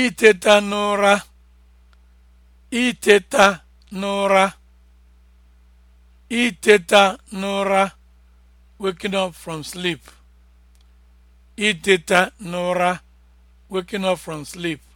iteta n'ụra iteta n'ụra iteta n'ụra waking up from n'ụra waking up from sleep